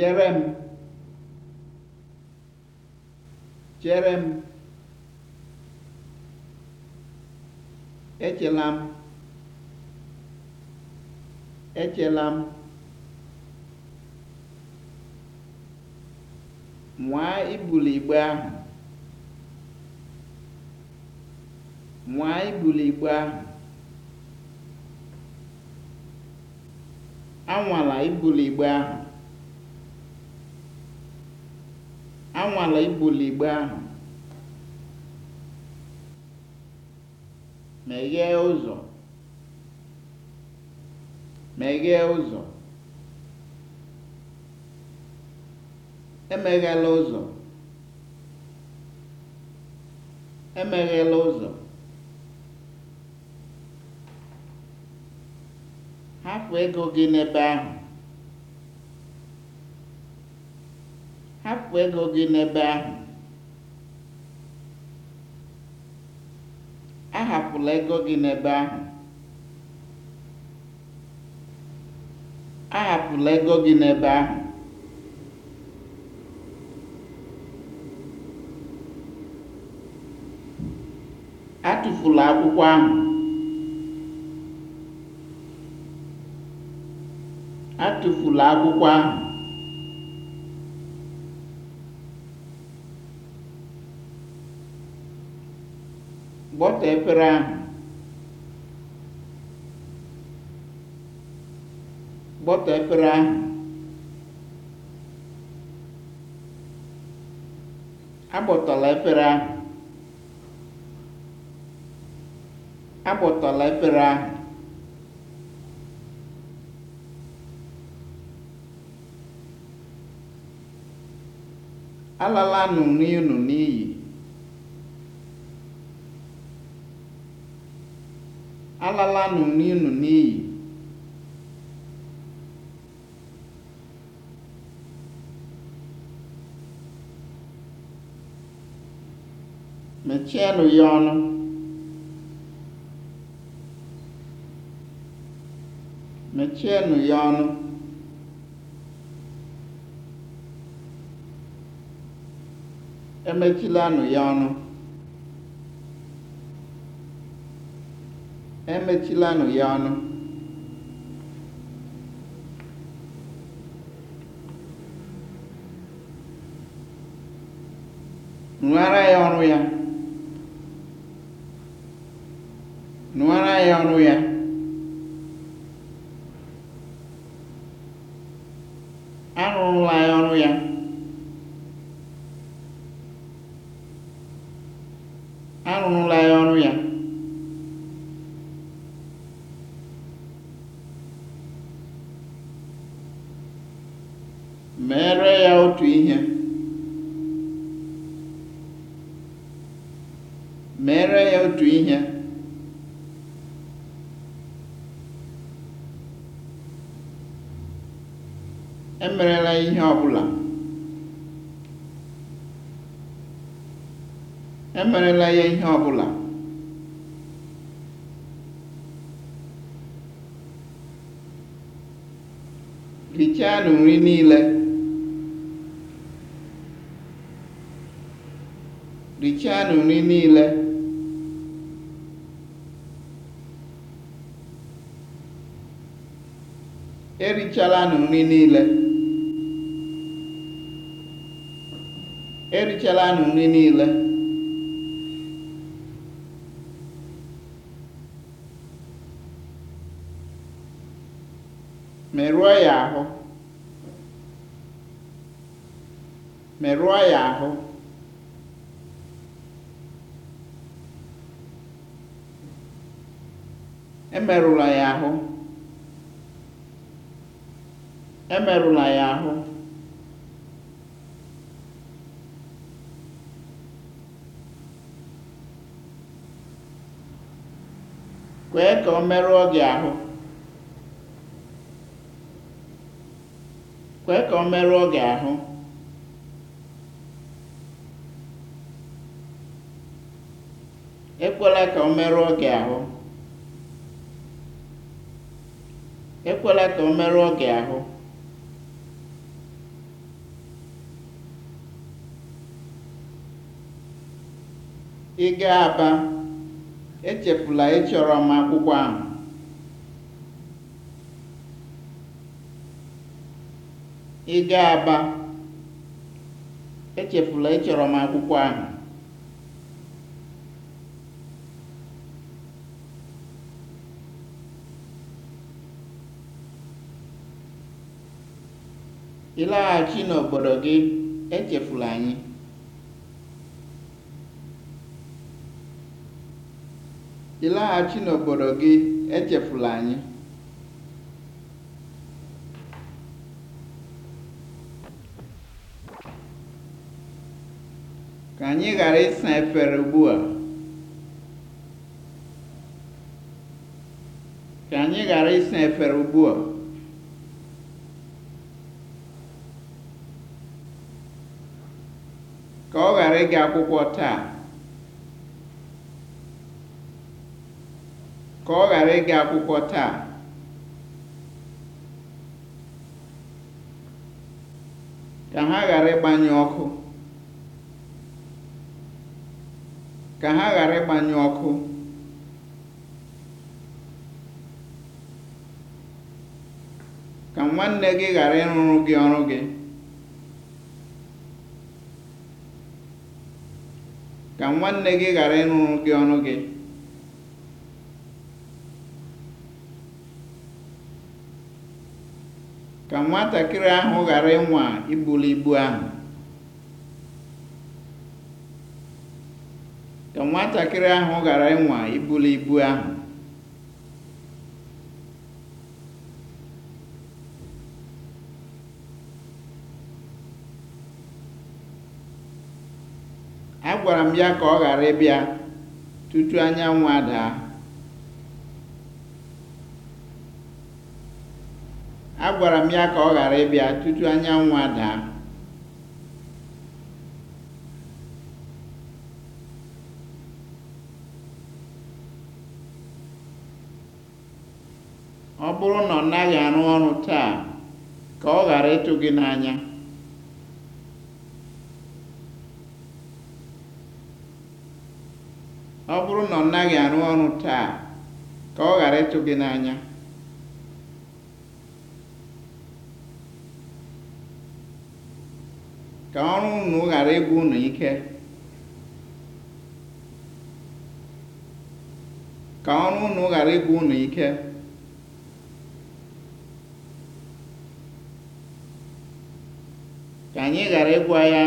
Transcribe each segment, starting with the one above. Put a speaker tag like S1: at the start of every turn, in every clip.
S1: Chere m! Chere m! Echela m! Echela m! Nwaa ibuli igbe ahụ! Nwaa ibuli igbe ahụ! Anwala ibuli igbe ahụ! Anwala ibuli igbe ahụ. Meghee ụzọ. Meghee ụzọ. Emeghela ụzọ. Emeghela ụzọ. Hapụ ego gị n'ebe ahụ. hapụ ego gị n'ebe ahụ ahapụla ego gị n'ebe ahụ ahapụla ego gị n'ebe ahụ atụfula akwụkwọ ahụ atụfula akwụkwọ ahụ Gbọtọ efere ahụ. Gbọtọ efere ahụ. Agbọtọla efere ahụ. Agbọtọla efere ahụ. Alala nụ n'iyi nụ n'iyi. alalanụ n'ịnụ n'iyi mechienụ ya ọnụ mechienụ ya ọnụ emechilanụ ya ọnụ Emechilanụ ya ọnụ. Nụara ya ọrụ ya. Nụara ya ọrụ ya. Arụrụla ya ọrụ ya. Arụrụla ya ọrụ ya. otu ihe mere ya otu ihe emerela ihe ọbụla emerela ya ihe ọbụla nri niile Richanụ nri niile. Erichalanụ nri niile. Erichalanụ nri niile. Merụọ ya ahụ. Merụọ ya ahụ. emerụla ya ahụ emerụla ya ahụ kwee ka ọ merụọ gị ahụ kwee ka ọ merụọ gị ahụ ekwela ka ọ merụọ gị ahụ ekwela ka ọ merụọ gị ahụ ị ga aba echefula ịchọrọ ị aba echefula ịchọrọ m akwụkwọ ahụ ịlaghachi n'obodo gị, echefula anyị. n'obodo gị, echefula anyị. Ka anyị ghara ịsa efere ugbua. Ka anyị ige akwụkwọ taa ka ọ ghara ịga akwụkwọ taa ka ha ghara ịgbanye ọkụ ka ha ghara ịgbanye ọkụ ka nwanne gị ghara ịrụrụ gị ọrụ gị ka nwanne gị ghara ịrụrụ gị ọnụ gị ka nwatakịrị ahụ ghara ịnwa ibuli ibu ahụ Agwara m ya ka ọ ghara ịbịa tutu anyanwụ adaa. ọ ghara ịbịa bụrụ na ọ naghị arụ ọrụ taa, ka ọ ghara ịtụ gị n'anya. Ọ naghị arụ ọrụ taa ka ọ ghara ịtụ gị n'anya ka ọrụ unu ghara ịbụ unu ike ka ọrụ unu ghara ịbụ unu ike ka anyị ghara ịgwa ya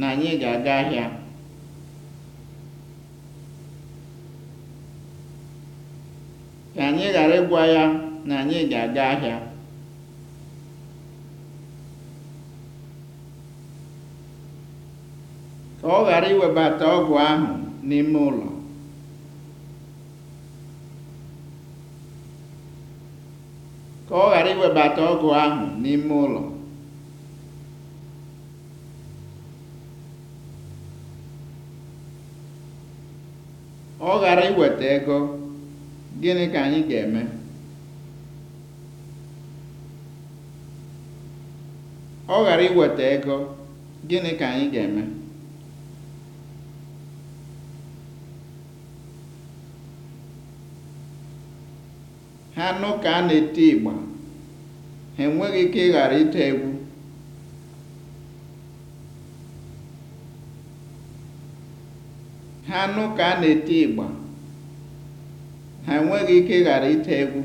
S1: na anyị ga-aga ahịa ka anyị ghara ịgwa ya na anyị ga-aga ahịa ka ọ ghara iwebata ọgwụ ahụ n'ime ụlọ ka ọ ghara iwebata ọgwụ ahụ n'ime ụlọ ọ ghara iweta ego Gịnị ka anyị ga-eme? Ọ ghara iweta ego, gịnị ka anyị ga-eme? Ha nụ ka a na eti ịgba, ha enweghị ike ghara ite egwu. Ha nụ ka a na eti ịgba ha enweghị ike ịghara ite egwu.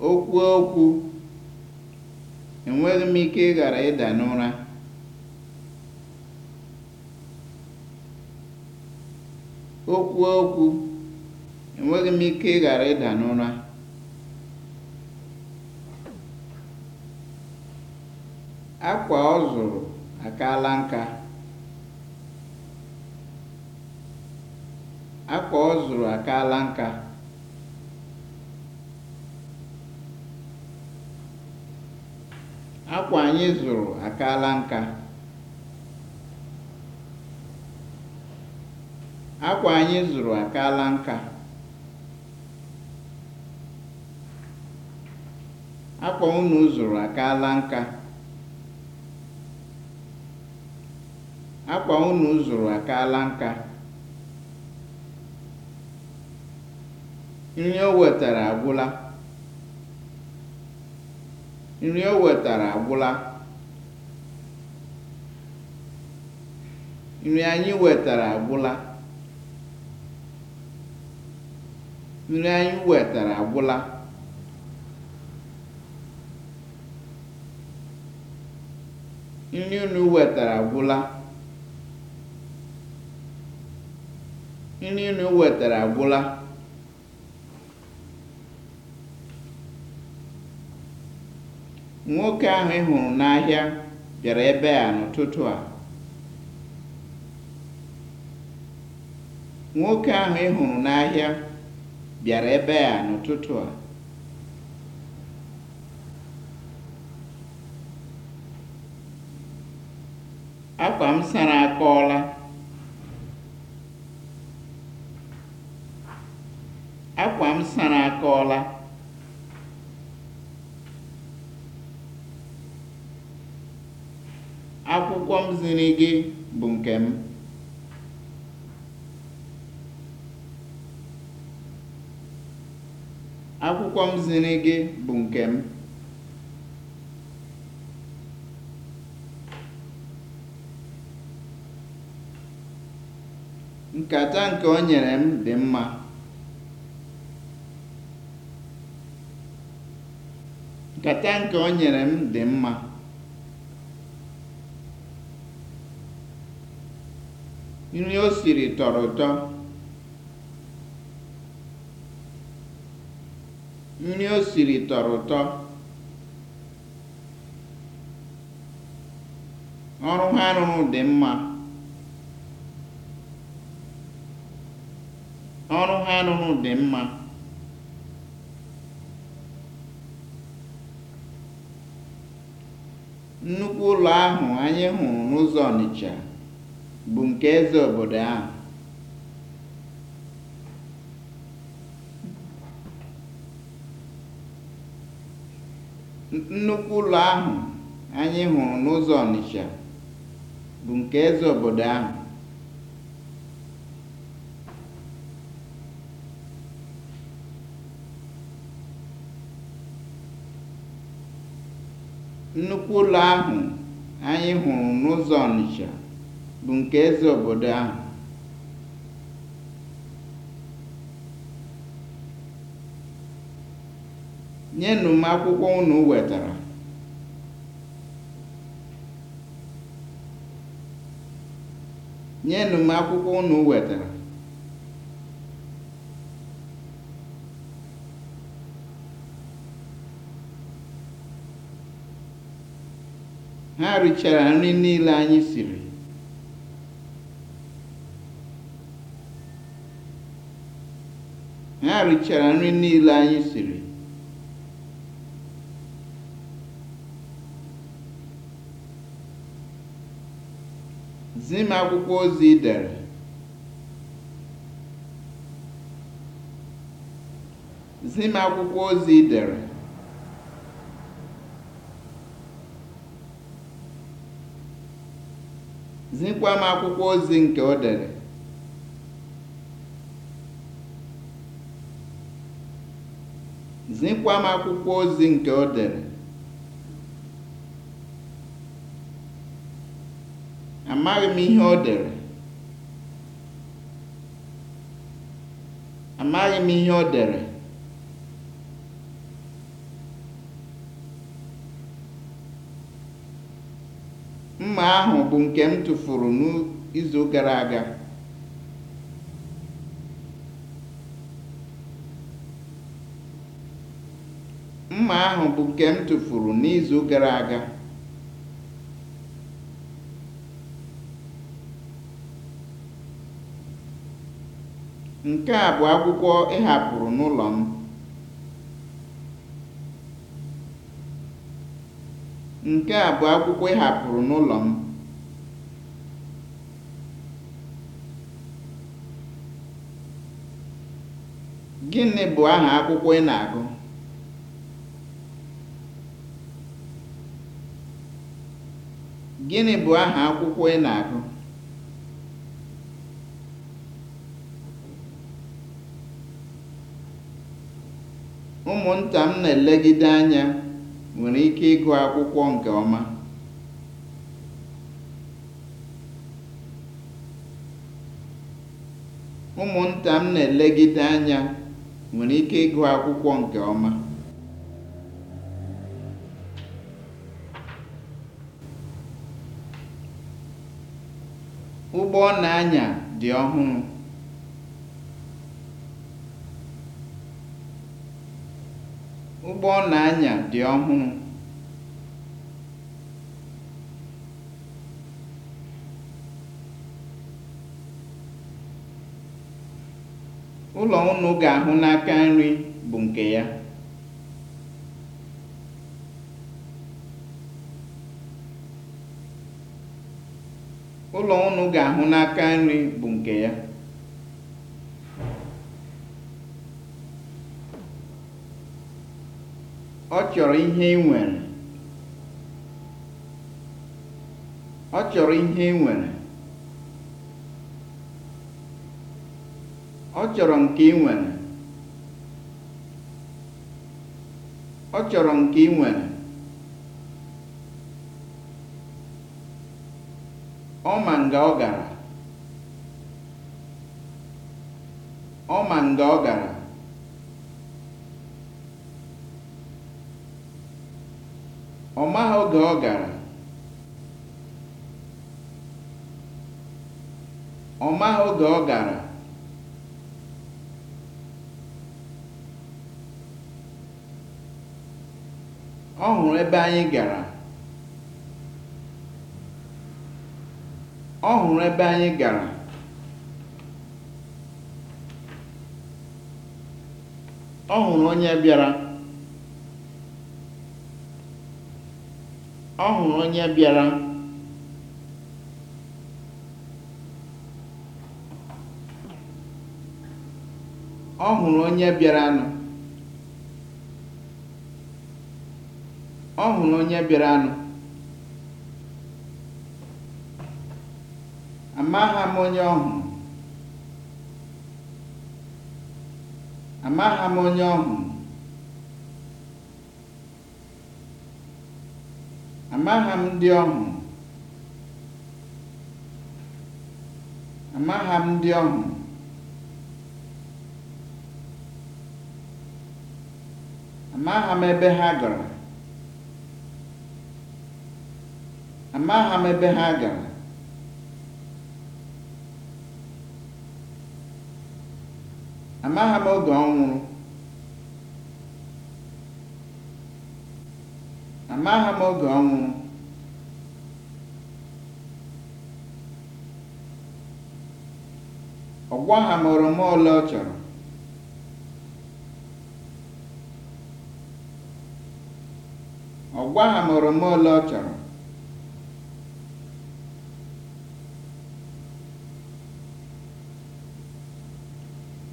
S1: O kwuo okwu, enweghị m ike ịghara ịda n'ụra. O okwu, enweghị m ike ịghara ịda n'ụra. akwa ọ zụrụ akaala nka akwa ọ zụrụ akaala nka akwa anyị zụrụ akaala nka akwa anyị zụrụ akaala nka akwa unu zụrụ akaala nka Akwa unu zụrụ akaala nka. Nri o wetara agwụla. Nri o wetara agwụla. Nri unu wetara agwụla. nri unu wetara agwụla nwoke ahụ ị hụrụ n'ahịa bịara ebe a n'ụtụtụ a nwoke ahụ ị n'ahịa bịara ebe a n'ụtụtụ a akwa m sara akọọla m sara akọọla akwụkwọ m ziri gị bụ nke m akwụkwọ m ziri gị bụ nke m nkata nke o nyere m dị mma Kata nke o nyere m dị mma nri o siri tọrọ ụtọ nri o siri tọrọ ụtọ ọrụ ha rụrụ dị mma ọrụ ha rụrụ dị mma Nnukwu ụlọ ahụ anyị hụrụ n'ụzọ Ọnịcha bụ nke eze obodo ahụ. bụ nke eze obodo ahụ. Nnukwu ụlọ ahụ anyị hụrụ n'ụzọ Ọnịcha bụ nke eze obodo ahụ. Nye m akwụkwọ unu wetara. wetara. ha richara nri niile anyị siri. ha richara nri niile anyị siri. Zim akwụkwọ ozi ị dere zi akwụkwọ ozi ị dere Zikwa m akwụkwọ ozi nke o dere. Zikwa m Amaghị m ihe o m ihe o dere. Mma ahụ bụ nke m tụfuru n'izu gara aga. nke n'izu gara aga. Nke a bụ akwụkwọ ị hapụrụ n'ụlọ m. Nke a bụ akwụkwọ ị hapụrụ n'ụlọ m. Gịnị bụ aha akwụkwọ ị na-agụ? Gịnị bụ Ụmụnta m na-elegide anya. nwere ike ịgụ akwụkwọ nke ọma. Ụmụnta m na-elegide anya nwere ike ịgụ akwụkwọ nke ọma. Ụgbọ ọ na-anya dị ọhụrụ. Ụgbọ na-anya dị ọhụrụ. Ụlọ ụnụ ga-ahụ n'aka nri bụ nke ya. Ọ chọrọ ihe ị nwere. Ọ chọrọ ihe ị nwere. Ọ chọrọ nke ị nwere. Ọ chọrọ nke ị nwere. Ọ ma nga ọ gara. Ọ ma nga ọ gara. Ọ maghị oge ọ gara Ọ hụrụ ebe anyị gara. Ọ hụrụ onye bịara. ọ hụrụ onye bịara ọ hụrụ onye bịaranụ ọ hụrụ onye bịaranụ amaghị m onye ọ hụrụ amaghị m onye ọ hụrụ Amaha m ndị ọ hụrụ. m ndị ọ hụrụ. m ebe ha gara. Amaha m ebe ha gara. Amaha m oge ọhụrụ. Amaghị m oge ọ nwụrụ. Ọ gwaghị m oroma ole ọ chọrọ. Ọ gwaghị m ole ọ chọrọ.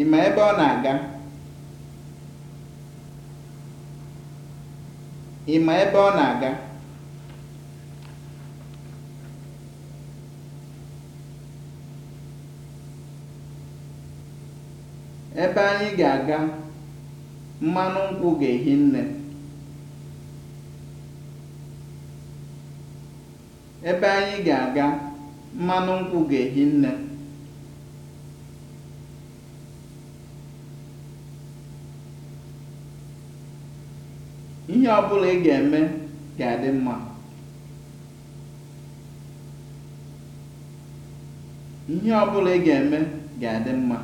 S1: Ị ma ebe ọ na-aga? Ị ma ebe ọ na-aga? Ebe anyị ga-aga, mmanụ nkwụ ga-ehi nne. Ebe anyị ga-aga, mmanụ nkwụ ga-ehi nne. Ihe ọ bụla ị ga-eme ga-adị mma. ọ ị ga-eme ga-adị mma.